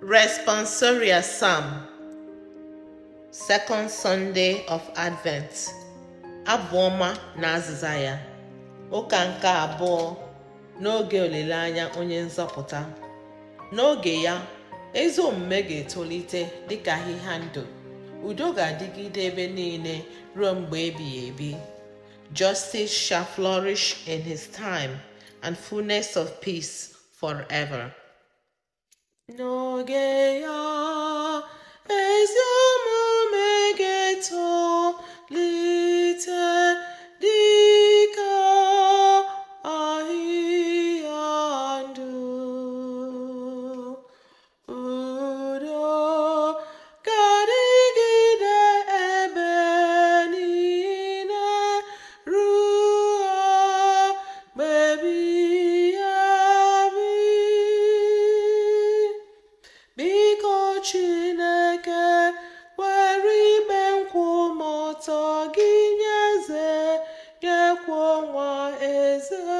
responsoria Psalm, Second Sunday of Advent, Abụọma na Azịza ya, Ụka nke abụọ n'oge olileanya onye nzọpụta. N'oge ya, ezi omume ga-etolite dịka ahịhịa ndụ, udo ga-adịgide ebe niile ruo mgbe ebighị ebi. Justice shall flourish in his time, and fullness of peace forever. No your. desert.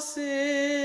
você.